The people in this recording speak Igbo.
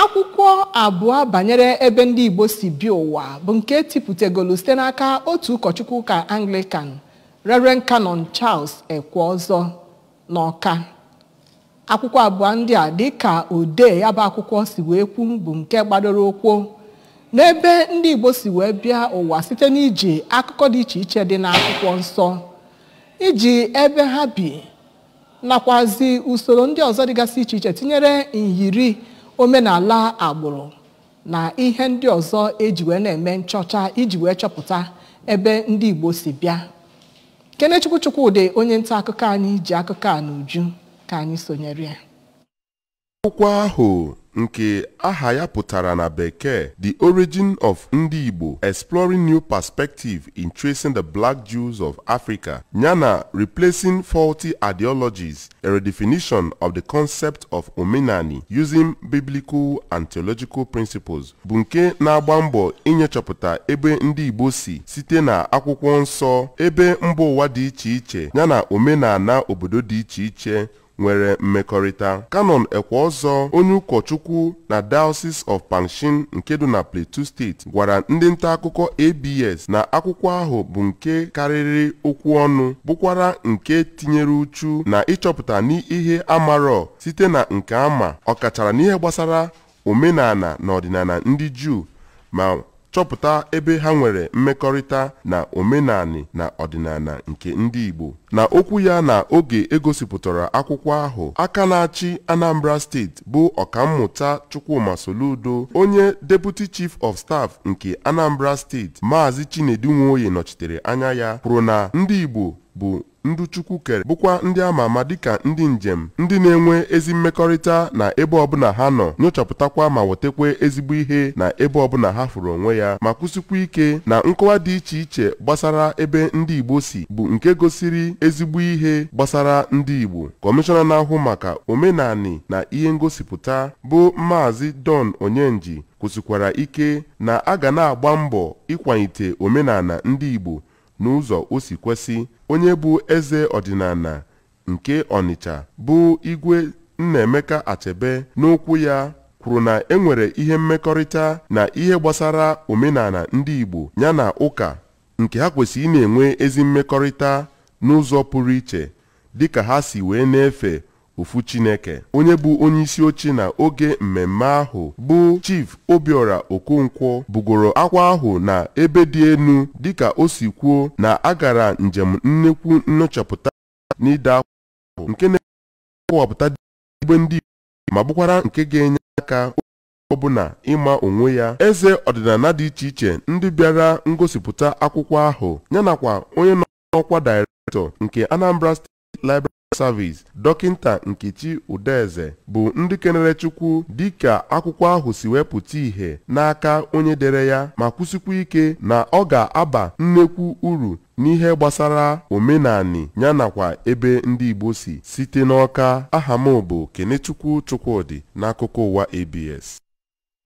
akwụkwọ abụọ banyere ebe ndị igbo si bi ụwa bụ nke tipụtagolu site n'aka otu ụkọchukwu ụka anglican reren canon charles ekwe ọzọ n'ọka akwụkwọ abụọ ndị a dịka odee ya bụ akwụkwọ si wee kwu bụ nke gbadoro ụkwụ n'ebe ndị igbo si wee bịa ụwa site n'iji akụkọ dị iche iche dị n'akwụkwọ nsọ iji ebe ha bi nakwazi usoro ndị ọzọ dịgasị iche iche tinyere nyiri omenala agbụrụ na ihe ndị ọzọ eji wee na-eme nchọcha iji wee chọpụta ebe ndị Igbo si bịa Kenechukwu ụdị onye nta akụkọ anyị ji akụkọ a n'uju ka anyị sonyere ya ahụ nke aha ya pụtara na bekee The Origin of Ndị Igbo Exploring New Perspective in Tracing the Black Jews of Africa yana Replacing Faulty Ideologies A Redefinition of the Concept of Omenani Using Biblical and Theological Principles bụ nke na-agba mbọ inyechọpụta ebe ndị Igbo si site na akwụkwọ nsọ ebe mba ụwa dị iche iche yana omenala obodo dị iche iche nwere mmekọrịta kanon ekwe ọzọ onye ụkọchukwu na Diocese of Pangshin nke dị na Plateau steeti gwara ndị nta akụkọ ABS na akwụkwọ ahụ bụ nke karịrị okwu ọnụ bụkwara nke tinyere uchu na ịchọpụta n'ihe amarọ site na nke ama ọkachara n'ihe gbasara omenala na ọdịnala ndị Juu ma chọpụta ebe ha nwere mmekọrịta na omenani na ọdịnala nke ndị Igbo na okwu ya na oge egosipụtara akwụkwọ ahụ aka na-achị Anambra steeti bụ ọkammụta Chukwuma Soludo onye Deputi chief of staff nke Anambra steeti Maazị Chinedu Nwoye nọchitere anya ya kwuru na ndị Igbo bụ ndị Chukwu kere bụkwa ndị ama ama dịka ndị njem ndị na-enwe ezi mmekọrịta na ebe ọbụla ha nọ nyochapụtakwa ma wetakwa ezigbo ihe na ebe ọbụla ha fụrụ onwe ya ma kwụsịkwa ike na nkọwa dị iche iche gbasara ebe ndị Igbo si bụ nke gosiri ezigbo ihe gbasara ndị Igbo kọmishọna na-ahụ maka omenani na ihe ngosipụta bụ Maazị Don Onyenji kwụsịkwara ike na a ga na-agba mbọ ịkwalite omenala ndị Igbo n'ụzọ o si kwesị onye bụ eze ọdịnala nke Ọnịcha bụ igwe Nnaemeka Achebe n'okwu ya kwuru na enwere ihe mmekọrịta na ihe gbasara omenala ndị Igbo ya na ụka nke ha kwesịrị ị na-enwe ezi mmekọrịta n'ụzọ pụrụ iche dịka ha si wee na-efe ofu chineke onye bụ onye isi oche na oge mmemme ahụ bụ chief obiora okonkwo bugoro akwa ahụ na ebe dị enu dịka o si kwuo na agara njem nnekwu nyochapụta n'ide akwụkwọ nke na-ekọwapụta igbe ndị ma bụkwara nke ga-enye aka ọbụna ịma onwe ya eze ọdịnala dị iche iche ndị bịara ngosipụta akwụkwọ ahụ yanakwa onye nọ n'ọkwa directọ nke Anambra steti libra service dọkịnta nkechi udeze bụ ndị kenere chukwu dịka akwụkwọ ahụ si wepụta ìhè n'aka onye dere ya ma kwụsịkwa ike na ọ ga-aba nnekwu uru n'ihe gbasara omenani ya nakwa ebe ndị igbo si site n'ọka aha m bụ kenechukwu chukwudị n'akụkọ ụwa abs